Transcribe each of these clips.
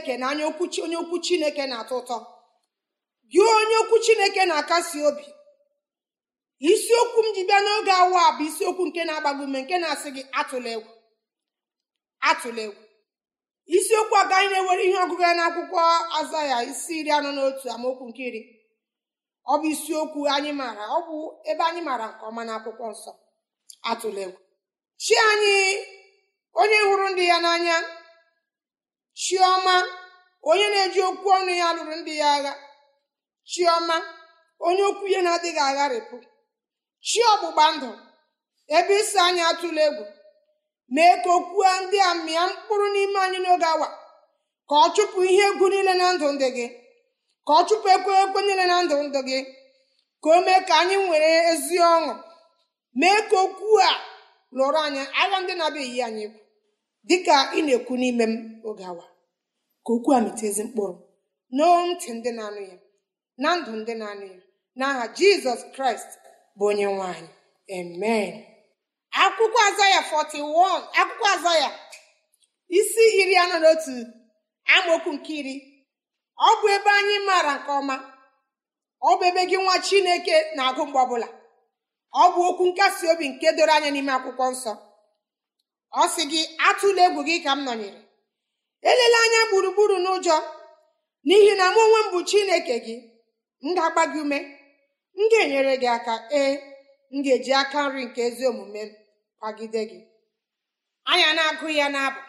chineke na anya okwu onye okwu chineke na-atọ ụtọ gị onye okwu chineke na-akasi obi isiokwu m ji bịa n'oge awa bụ isiokwu nke na-agbago ume nke na-asị gị atụla egwu atụla egwu isiokwu agaghị na-ewere ihe ọgụgụ ya akwụkwọ aza ya isi iri anọ n'otu amaokwu nke iri ọ bụ isiokwu anyị maara ọ bụ ebe anyị maara nke ọma akwụkwọ nsọ atụla egwu chi anyị onye hụrụ ndị ya n'anya Chioma, onye na-eji okwu ọnụ ya lụrụ ndị ya agha Chioma, onye okwu ya na-adịghị agharịpụ chi ọgbụgba ndụ ebe isi anyị atụla egwu mee ka okwuo ndị a mịa mkpụrụ n'ime anyị n'oge awa ka ọ chụpụ ihe egwu niile na ndụ ndị gị ka ọ chụpụ ekwe ekwe niile na ndụ ndụ gị ka o mee ka anyị nwere ezi ọṅụ mee ka okwu a lụrụ anya agha ndị na-abịaghị anyị dịka ị na-ekwu n'ime m oge awa ka okwu a ezi mkpụrụ nọọ ntị ndị na-anụ ya na ndụ ndị na-anụ ya n'aha jizọs kraịst bụ onye nwanyị amen akwụkwọ azaya 41 akwụkwọ azaya isi iri anọ n'otu. amaokwu nke iri ọ bụ ebe anyị maara nke ọma ọ bụ ebe gị nwa chineke na-agụ mgbe ọbụla ọ bụ okwu nkasi obi nke doro anya n'ime akwụkwọ nsọ ọ sị gị atụla egwu gị ka m nọnyere elele anya gburugburu n'ụjọ n'ihi na mụ onwe m bụ chineke gị m ga-agba gị ume m ga-enyere gị aka ee m ga-eji aka nri nke ezi omume m gị anya na-agụ ya n'abụ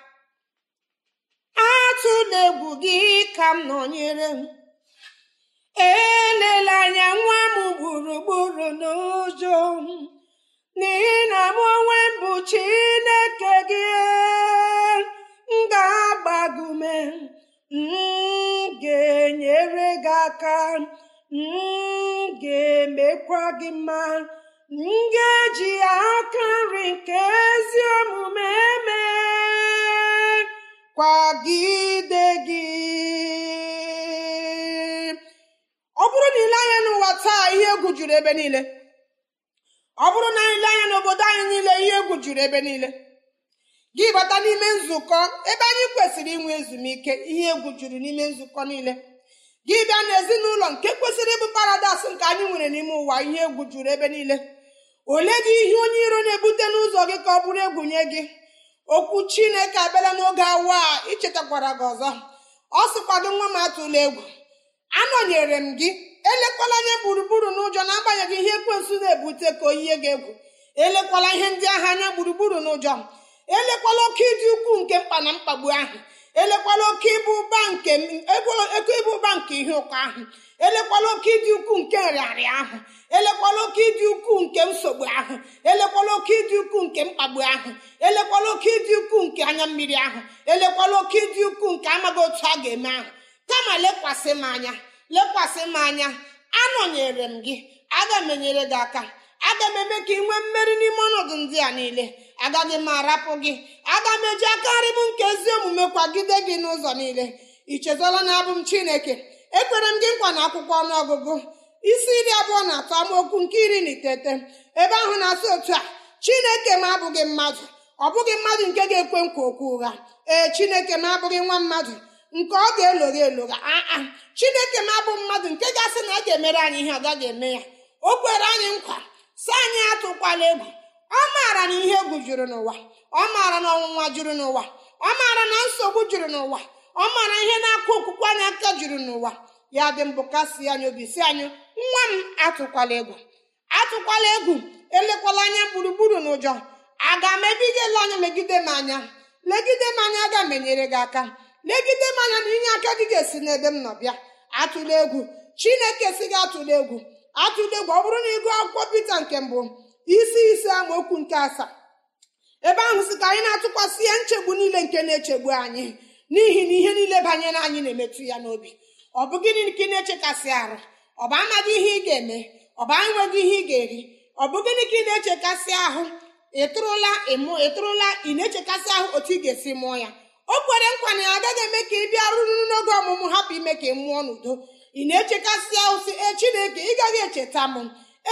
atụla egwu gị ka m nọnyere m elela anya nwa m gburugburu n'ụjọ n'ihi na mụ onwe m bụ chineke gị ga-agbagume ga-enyere gị aka m ga-emekwa gị mma m ga-eji aka nri nke ezi omume eme kwagide gị ọ bụrụ na ile anya n'ụwa taa ihe egwu juru ebe niile ọ bụrụ na ile anya n'obodo anyị niile ihe egwu juru ebe niile gị bata n'ime nzukọ ebe anyị kwesịrị inwe ezumike ihe egwu juru n'ime nzukọ niile gị bịa n'ezinụlọ nke kwesịrị ịbụ paradaịs nke anyị nwere n'ime ụwa ihe egwu juru ebe niile ole gị ihe onye iro na-ebute n'ụzọ gị ka ọ bụrụ egwu nye gị okwu chineke abịala n'oge awa a ichetakwara gị ọzọ ọ sịkwado nwa m atụla egwu anọnyere m gị elekwala anya gburugburu n'ụjọ na-agbanyeghị ihe ekwensụ na-ebute ka oyie gị egwu elekwala ihe ndị agha anya gburugburu n'ụjọ elekwala oke ịdị ukwuu nke mkpa na mkpagbu ahụ elekwala oke ịbụ ụba nke ego ịbụ ụba nke ihe ụkọ ahụ elekwala oke ịdị ukwuu nke nrịarịa ahụ elekwala oke ịdị ukwuu nke nsogbu ahụ elekwala oke ịdị ukwuu nke mkpagbu ahụ elekwala oke ịdị ukwuu nke anya mmiri ahụ elekwala oke ịdị ukwuu nke amaghị otu a ga-eme ahụ kama lekwasị m anya lekwasị m anya anọnyere m gị aga m enyere gị aka aga m eme ka ị nwee mmeri n'ime ọnọdụ ndị a niile agaghị m arapụ gị aga m eji akarị m nke ezi omume kwagide gị n'ụzọ niile I chezọla na abụ m chineke ekwere m gị nkwa na akwụkwọ ọnụọgụgụ isi iri abụọ na atọ amaokwu nke iri na iteghete ebe ahụ na-asị otu a chineke m abụghị mmadụ ọ bụghị mmadụ nke ga-ekwe nkwa okwu ụgha ee chineke m abụghị nwa mmadụ nke ọ ga-elogha elogha aa chineke m abụ mmadụ nke ga-asị na a ga-emere anyị ihe ọ gaghị eme ya o kwere anyị nkwa si anyị atụkwala egwu ọ maara na ihe egwu juru n'ụwa ọ maara na ọnwụnwa juru n'ụwa ọ maara na nsogbu juru n'ụwa ọ maara ihe na-akụ okwukwe anyị aka juru n'ụwa ya dị mbụ kasi anya obi si anyị nwa m atụkwala egwu atụkwala egwu elekwala anya gburugburu n'ụjọ aga m ebigela anya megide m anya legide m anya aga m enyere gị aka legide m anya na inye aka gị ga-esi n'ebe m nọ bịa atụla egwu chineke si gị atụla egwu atụle gwa ọ bụrụ na ịgụ akwụkwọ pete nke mbụ isi ise amaokwu nke asaa ebe ahụ si ka anyị na-atụkwasị ya nchegbu niile nke na-echegbu anyị n'ihi na ihe niile banyere anyị na-emetụ ya n'obi ọ bụ gịnị na-echekasị arụ ọ bụ amaghị ihe ị ga-eme ọ bụ enweghị ihe ị ga-eri ọ bụ gịnị ka ị na-echekasị ahụ ịtụrụla ịmụ ịtụrụla ị na-echekasị ahụ otu ị ga-esi mụọ ya o kwere nkwa na ya agaghị eme ka ị bịa rụrụ n'oge ọmụmụ hapụ ime ka ị mụọ n'udo ị na-echekasị ụsị e chineke ị gaghị echeta m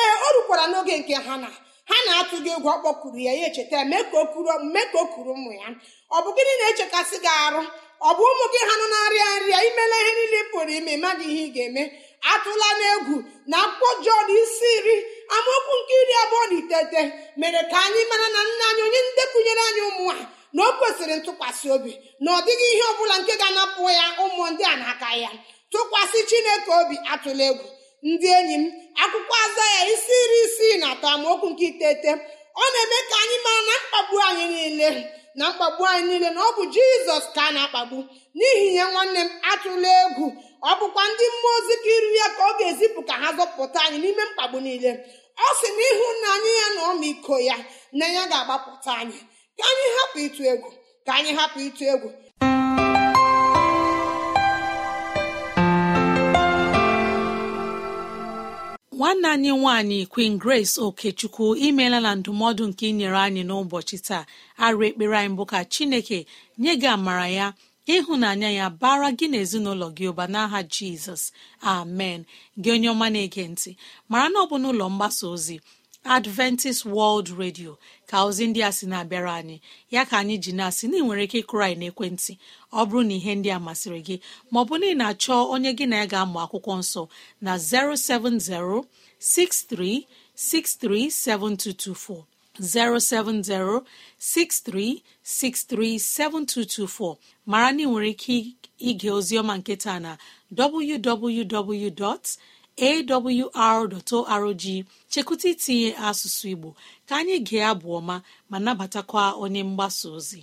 ee o rukwara n'oge nke ha na ha na gị egwu ọ ya ya echeta mee ka okuru kuru mee ka o kuru ụmụ ya ọ bụ gịnị na-echekasị gị arụ ọ bụ ụmụ gị ha nọ na-arịa nrịa imela ihe niile pụrụ ime mmadụ ihe ị ga-eme atụla n'egwu na akwụkwọ jọn isi nri amaokwu nke iri abụọ na itete mere ka anyị mara na nna anyị onye ndekụnyere anyị ụmụ a na o kwesịrị ntụkwasị obi na ọ dịghị ihe ọ bụla nke ga-anapụ ya ụmụ ndị a na-aka ya tụkwasị chineke obi atụla egwu ndị enyi m akwụkwọ aza ya isi iri isii na atọ amaokwu nke iteghete ọ na-eme ka anyị mara na mkpagbu anyị niile na mkpagbu anyị niile na ọ bụ jizọs ka a na-akpagbu n'ihi ya nwanne m atụla egwu ọ bụkwa ndị mmụọ ozi ka iru ya ka ọ ga-ezipụ ka ha zọpụta anyị n'ime mkpagbu niile ọ sị na ịhụnanya ya na ọmịiko ya na ya ga-agbapụta anyị ka anyị hapụ ịtụ egwu ka anyị hapụ ịtụ egwu nwanne anyị nwaanyị Queen Grace Okechukwu imela na ndụmọdụ nke inyere anyị n'ụbọchị taa arụ ekpere anyị bụ ka Chineke nye gị amara ya ịhụnanya ya bara gị n'ezinụlọ gị ụba n'aha Jizọs amen gị onye ọma na-ege ntị mara na ọ bụ n'ụlọ mgbasa ozi adventist world radio ka ozi ndị a sị na-abịara anyị ya ka anyị ji na-asị na ị nwere ike ịkụrụ anyị n'ekwentị ọ bụrụ na ihe ndị a masịrị gị ma maọbụ na ị na-achọ onye gị na ya ga-amụ akwụkwọ nsọ na 070 6363 7224 070 6363 7224 mara na ị nwere ike ige ozi ọma nketa na www. awr.org chekwụta itinye asụsụ Igbo ka anyị gee abụ ọma ma nabatakwa onye mgbasa ozi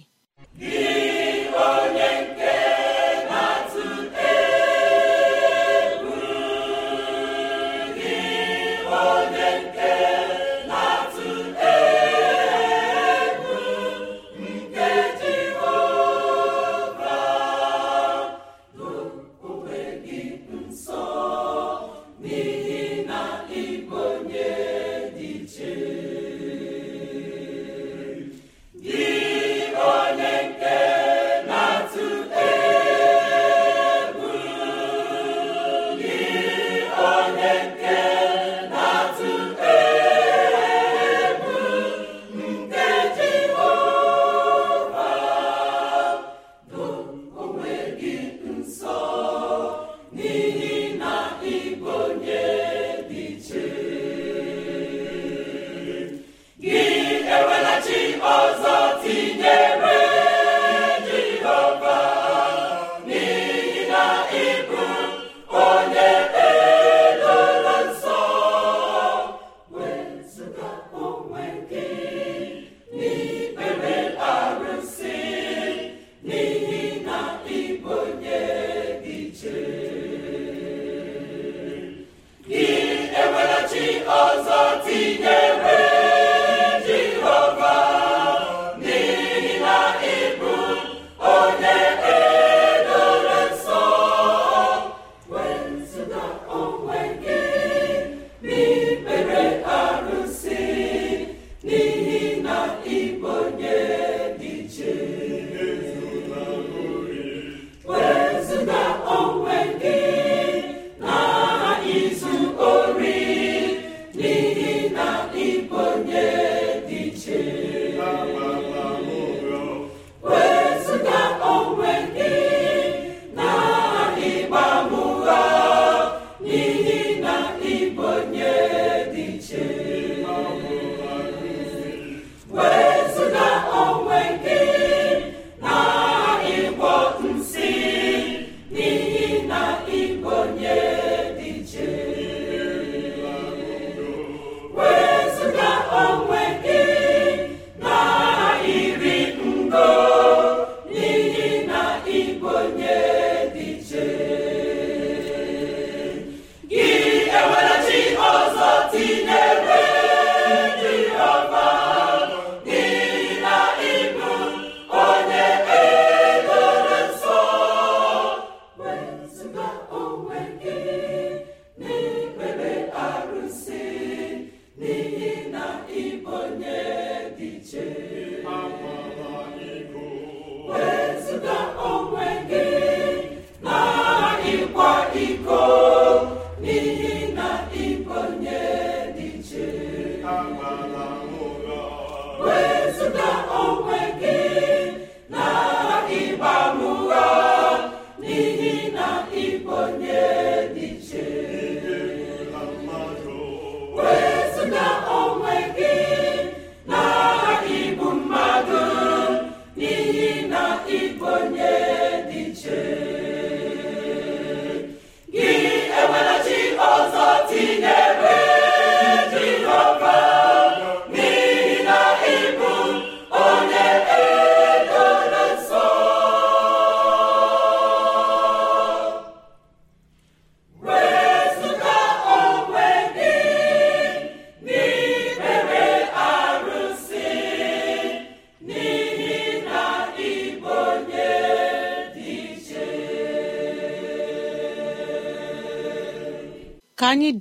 mba onwe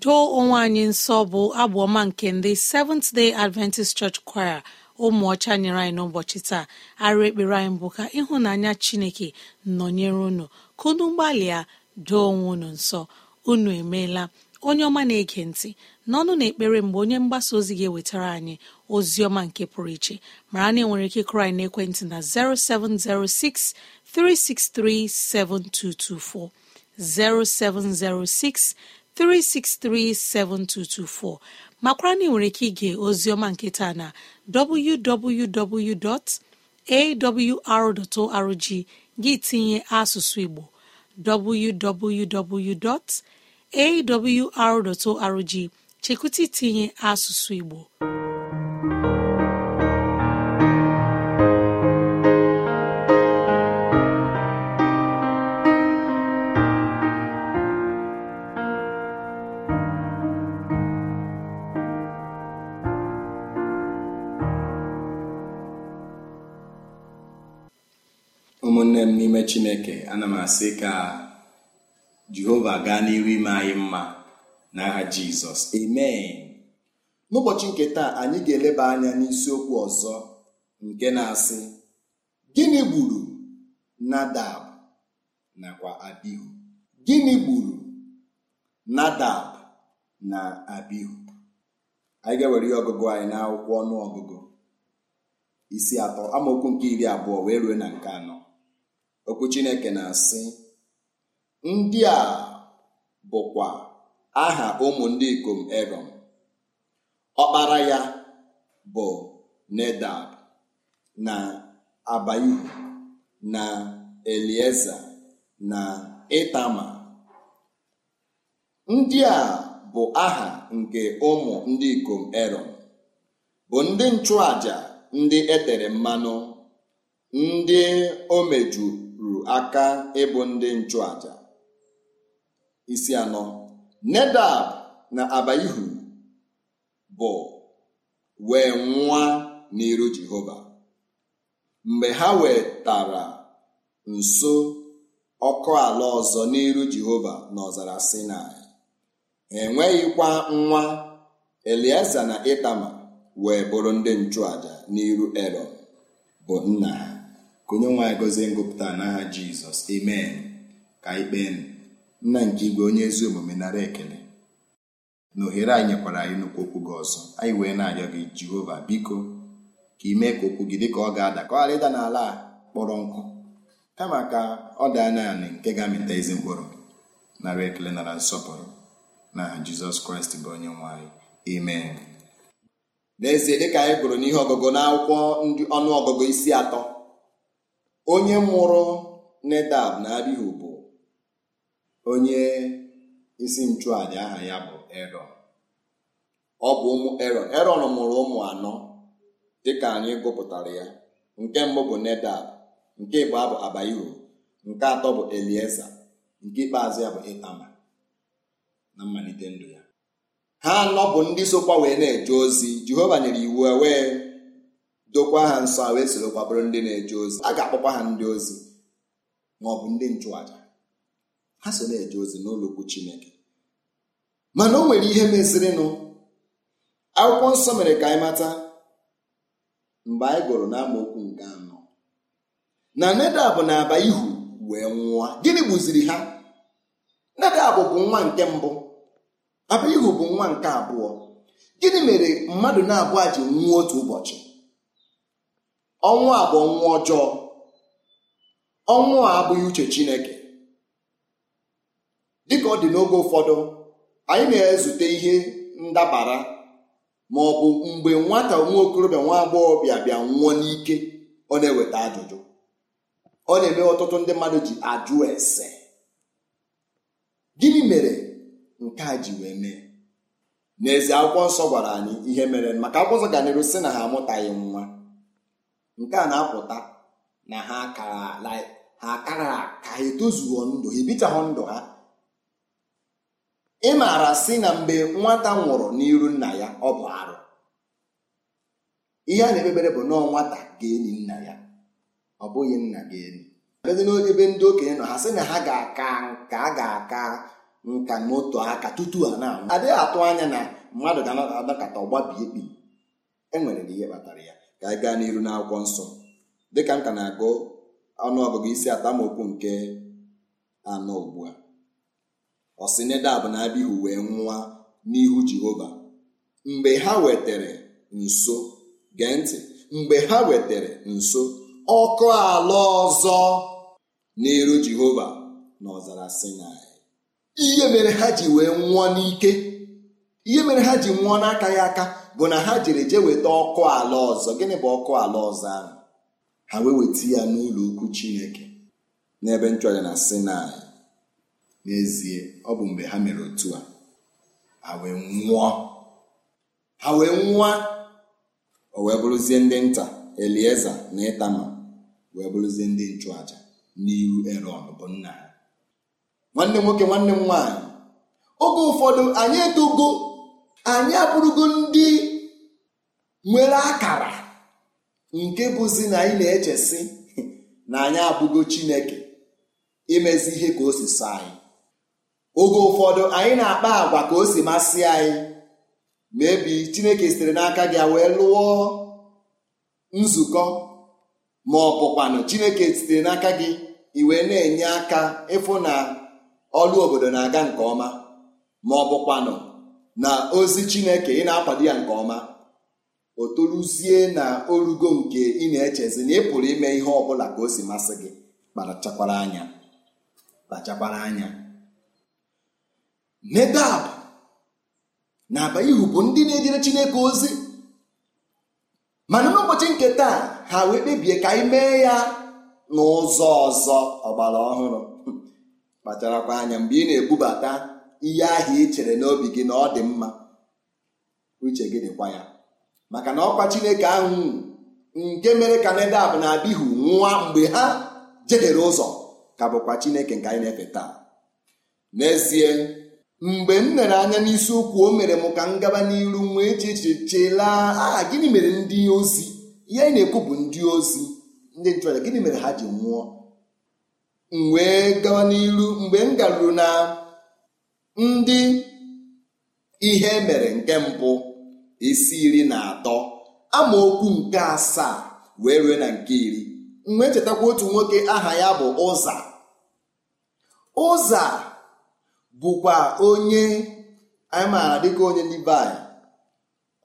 doo onwe anyị nsọ bụ abụ ọma nke ndị Seventh Day Adventist Church Choir ụmụ ọcha nyere anyị n'ụbọchị taa arụ ekpere anyị bụ ka ịhụnanya Chineke nọnyere unu ka unu gbalịa doo onwe unu nsọ unu emeela onye ọma na-ege ntị n'ọnụ na ekpere mgbe onye mgbasa ozi ga-ewetara anyị ozi ọma nke pụrụ iche mara na enwere ike kụrụ anyị n'ekwentị na 0706 363 7224 0706 3637224 makwara na ị nwere ike ige ozioma nketa na www.awr.org gị tinye asụsụ Igbo www.awr.org chekwụta itinye asụsụ Igbo chineke ana m asị ka jehova gaa n'ihu ime anyị mma n'agha jizọs amen n'ụbọchị nke taa anyị ga-eleba anya n'isiokwu ọzọ nke na-asị gịnị gburu nadab nakwa abihu gịnị gburu nadab na abihu anyị ga-ewere ihe ọgụgụ anyị n'akwụkwọ ọnụ ọgụgụ isi atọ amaokwu nke iri abụọ wee rue na nke anọ okwu chineke na-asị ndị a bụkwa aha ụmụ ndị ikom erom ọkpara ya bụ nedab na abaihu na elieza na itama ndị a bụ aha nke ụmụ ndị ikom erom bụ ndị nchụaja ndị etere mmanụ ndị omeju aka ịbụ ndị nchụàja isi anọ Nedab na Abaihu bụ wee nwa n'iru Jehova mgbe ha wetara nso ọkụ ala ọzọ n'iru Jehova n'ọzara Sinai enweghịkwa nwa Elieza na Itama wee bụrụ ndị nchụàja n'iru ero bụ nna ha ka onye nwe anyị gọzie ngụpụta n'aha jizọs amen ka anyị nna nke igwe onye ezi omume nara ekele na ohere anyị nyekwara anyị nnukwu okwu gị ọzọ anyị wee na-arịọ gị jehova biko ka ị mee ka okwu gị dịka ọ ga-ada ka ọ ghara ịda n'ala a kpọrọ nkụ kama ka ọ daa na nke ga-amịta ezi mkpụrụ nara ekele nara nsọpụrụ n'aha jizọs kraịst bụ onye nwe emen amen n'ezie dịka anyị gụrụ n'ihe ọgụgụ n'akwụkwọ ndị ọnụ ọgụgụ isi atọ onye mụrụ nedab na Abihu bụ onye isi nchụaja aha ya bụ ero ọ bụ ụmụ ero eron mụrụ ụmụ anọ dịka anyị gụpụtara ya nke mbụ bụ nedab nke ịbụọ bụ abaihu nke atọ bụ Elieza nke ikpeazụ ya bụ Itama na mmalite ndụ ya ha anọ bụ ndị sokwa wee na-eje ozi Jehova nyere iwu e wee dokwa ha nsọ wee sorokwa bụrụ ndị na-eje ozi a ga-akpọkwa ha ndị ozi ma ọ bụ ndị nchụaja ha so na-eje ozi n'ụlọ Chineke mana o nwere ihe mezirinụ akwụkwọ nsọ mere ka anyị mata mgbe anyị gụrụ n'amaokwu nke anọ na Nedab na-aba ihu wee nwụọ gịnị gbuziri ha Nedab bụ nwa nke mbụ Abaihu bụ nwa nke abụọ gịnị mere mmadụ na-abụọ ji nwụọ otu ụbọchị ọnwụ a bụ ọnwụ ọjọọ ọnwụ a abụghị uche chineke dịka ọ dị n'oge ụfọdụ anyị na-ezute ihe ndabara ma ọ bụ mgbe nwata nwa okorobịa nwa agbọghọ bịa bịa nwụọ n'ike ọ na-eweta ajụjụ ọ na-eme ọtụtụ ndị mmadụ ji ajụ ese gịnị mere nke a ji wee mee n'ezie akwụkwọ nsọ gwara anyị ihe mere maka akwụkwọ nsọ ga n'iru si na ha amụtaghị nwa nke a na-apụta na ha kara ha kara ka ha etozuo ndụ ha ebichaghị ndụ ha ị maara si na mgbe nwata nwụrụ n'iru nna ya ọ bụ arụ ihe a na-ekpebere bụ nọọ nwata ga-eni nna ya ọ bụghị nna ga-eni ebe n'ebe ndị okenye nọ ha sị na ha ga-aka nka a ga-aka nka n'otu aka tutu ha na-anwụ adịghị atụ anya na mmadụ ga adakata ọgbabi kpi enwere na ihe kpatara ya ka anyị gaa n'iru n'akwụkwọ nsọ dịka m ka na-agụ ọnụọgụgụ isi atamokwu nke anọ ugbu a ọ sị na Abihu wee nwụọ n'ihu Jehova mgbe ha wetere nso gee ntị mgbe ha wetere nso ọkụ ala ọzọ n'iru Jehova n'ọzara Sinai ihe mere ha ji wee nwụọ n'ike ihe mere ha ji nwụọ n'aka ya aka bụ na ha jere jee weta ọkụ ala ọzọ gịnị bụ ọkụ ala ọzọ ahụ ha wee weta ya n'ụlọ ukwu chineke n'ebe nchụaja na sinai n'ezie ọ bụ mgbe ha mere otu a ha wee nwụọ ha wee nwụọ o wee bụrụzie ndị nta elieza na ịtama wee bụrụzie ndị nchụaja n'ihu erọn bụ nna ha nwanne m nwoke nwanne m nwaanyị oge ụfọdụ anyị edugo anyị abụrụgo ndị nwere akara nke bụzi na anyị na-echesi na anyị abụgo chineke imezi ihe ka o si so anyị oge ụfọdụ anyị na-akpa agwa ka o si masị anyị ma e chineke sitere n'aka gị wee lụọ nzukọ ma ọ bụkwanụ chineke sitere n'aka gị iwe na-enye aka ịfụ na ọrụ obodo na-aga nke ọma ma ọ bụkwanụ na ozi chineke ị na-akwado ya nke ọma o toruzie na orugo nke ị na-echezi na ị pụrụ ime ihe ọ bụla ka o si masị gị kpachakwara anya kpachakwara anya Nedab na Abaihu bụ ndị na-ejere chineke ozi mana n'ụbọchị nke taa ha wee kpebie ka anyị mee ya n'ụzọ ọzọ ọgbara ọhụrụ kpacharakwa anya mgbe ị na-ebubata ihe ahụ ị chere n'obi gị na ọ dị mma uche gị dịkwa ya maka na ọkwa Chineke ahụ nke mere ka Nedab na Abihu nwa mgbe ha jedere ụzọ ka bụkwa Chineke nke anyị na-efe taa n'ezie mgbe m mere anya n'isi ụkwụ o mere m ka m gaba n'iru nwee chechechela aha gịnị mere ndị ozi ihe anyị na-ekwu bụ ndị ozi ndị nchụaja gịnị mere ha ji nwụọ m wee gaba n'iru mgbe m garuru na ndị ihe mere nke mbụ isi iri na atọ amaokwu nke asaa wee rue na nke iri mgbe chetakwa otu nwoke aha ya bụ ụza ụza bụkwa onye anyị maara dịka onye libai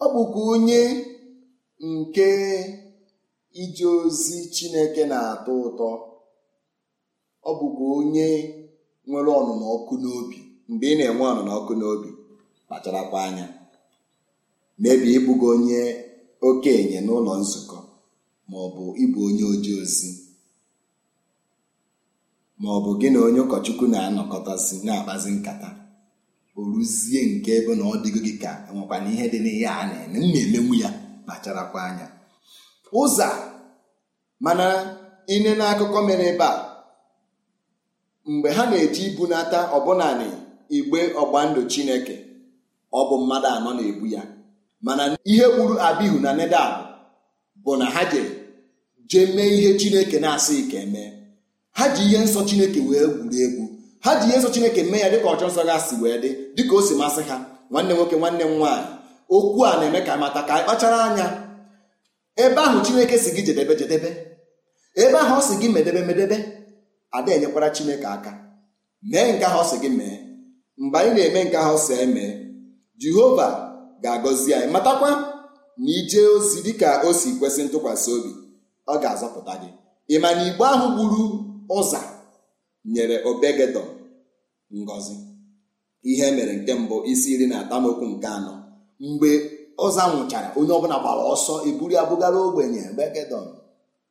ọ bụkwa onye nke ije ozi chineke na-atọ ụtọ ọ bụkwa onye nwere ọnụnọ ọkụ n'obi mgbe ị na-enwe ọnụnọ ọkụ n'obi kpacharakwa anya mebie ịbụgo onye okenye n'ụlọ nzukọ ma ọ bụ ịbụ onye oji ozi ma ọ bụ gị na onye ụkọchukwu na-anọkọtasị na-akpazi nkata o ruzie nke ebe na ọ dịgo gị ka enwekwana ihe dị n'ihe a na-eme m na-emenwu ya kpacharakwa anya ụzọ mana ine n'akụkọ mere ebe a mgbe ha na-eji ibunata ọbụnani igbe ọgbandụ chineke ọ bụ mmadụ anọ na-ebu ya mana ihe gburu abihu na nedab bụ na ha jere jee mee ihe chineke na-asị ike mee ha ji ihe nsọ chineke wee gwuru egwu ha ji ihe nsọ chineke mee ya dịka ọchọ nsọ ga si wee dị dịka o si masị ha nwanne nwoke nwanne m nwaanyị okwu a na-eme ka mata ka kpachara anya ebe ahụ chineke si gị jedebe jedebe ebe ahụ ọ si gị medebe medebe ada enyekwara chineke aka mee nke ahụ ọ si gị mee mgbe anyị na-eme nke ahụ sọ eme jehova ga-agọzi anyị matakwa na ijee ozi dịka o si kwesị ntụkwasị obi ọ ga-azọpụta gị ịma na igbo ahụ gburu ụza nyere obegedon ngọzi ihe mere nke mbụ isi iri na atamokwu nke anọ mgbe ọza nwụchara onye ọbụla gbara ọsọ eburu ya bugara ogbenye obegedon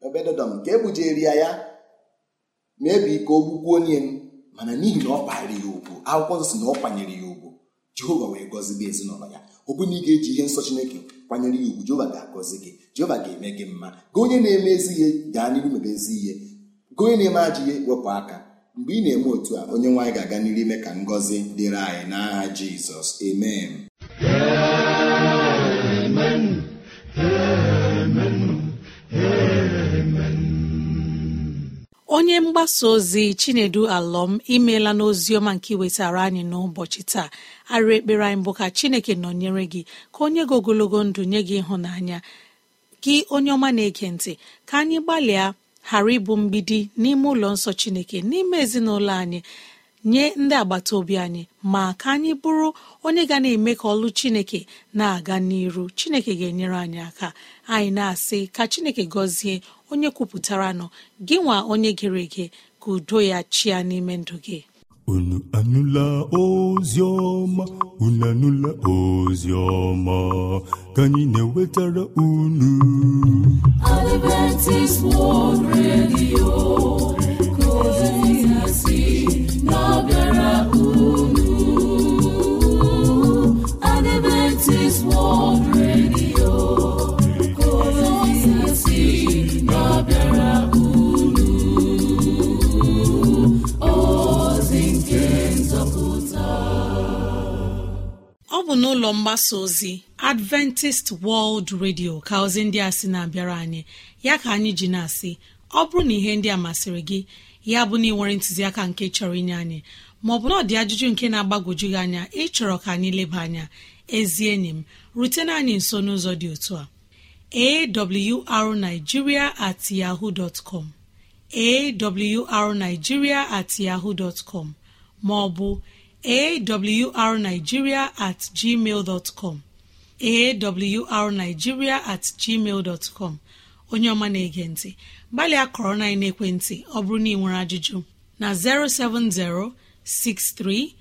obegedon nke ebujeri ya ya mebi ka o gbukwu onye m mana n'ihi na ọ kpaara ya ugwu akwụkwọ nsọ si na ọ kwanyere ya ugwu jehova wee gị ezinụlọ ya ọ bụ na ị ga-eji ihe nsọ chineke kwanyere ya ugwu jehova ga-agọzi gị jehova ga-eme gị mma gị onye na-eme ezi ihe gaa n'iru mebe ezi ihe gị onye na-eme ajọ ihe wepụ aka mgbe ị na-eme otu a onye nwaanyị ga-aga n'iru ime ka ngọzi dịrị anyị n'aha jizọs amen onye mgbasa ozi chinedu alọm imeela n'oziọma nke iwetara anyị n'ụbọchị taa arịa ekpere anyị bụ ka chineke nọnyere gị ka onye gị ogologo ndụ nye gị ịhụnanya gị onye ọma na-ege ntị ka anyị gbalịa ghara ịbụ mgbidi n'ime ụlọ nsọ chineke n'ime ezinụlọ anyị nye ndị agbata obi anyị ma ka anyị bụrụ onye ga na-eme ka ọlụ chineke na-aga n'iru chineke ga-enyere anyị aka anyị na-asị ka chineke gọzie onye kwupụtara nọ gị nwa onye gere ege ka udo ya chia n'ime ndụ gị unu anụla ozi ọma unu anụla ozi ka anyị na-ewetara unu ozi si na unu Adventist World Radio bụ n'ụlọ mgbasa ozi adventist world radio ka ozi ndị a sị na-abịara anyị ya ka anyị ji na-asị ọ bụrụ na ihe ndị a masịrị gị ya bụ na ịnwere ntụziaka nke chọrọ inye anyị maọbụ na ọ dị ajụjụ nke na-agbagwoju gị anya ịchọrọ ka anyị leba anya ezi enyi m rutena anyị nso n'ụzọ dị otu a awrnigeria at yahoo dot com awrnigeria at yahoo dot com maọbụ awrnigeria at gmail awrnigeria at gmail dot onye ọma na-ege ntị gbalịa kọrọ na ekwentị ọ bụrụ na ị nwere ajụjụ na 070 63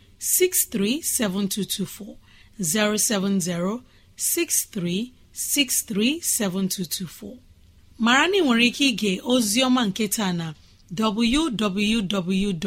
7224 070 63 7224 mara na ị nwere ike ige ozi ọma nke taa na www.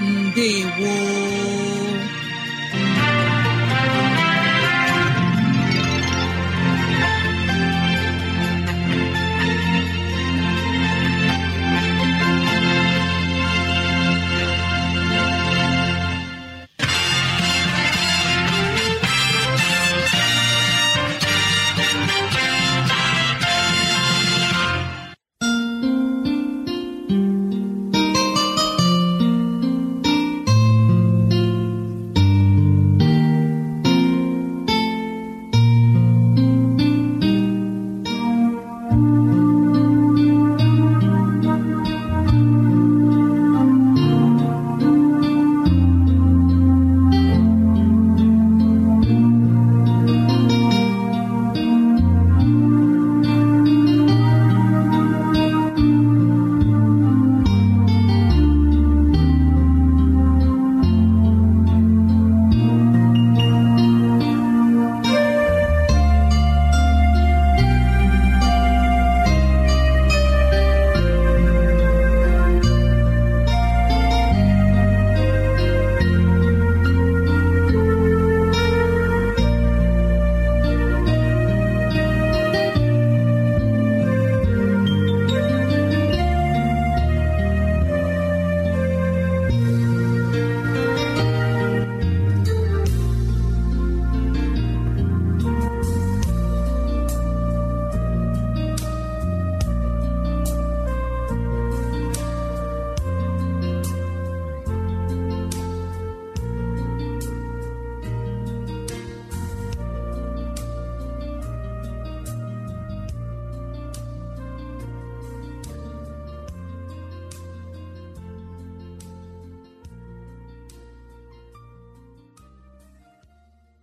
ndewo